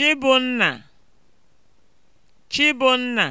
Chibụnna Chibụnna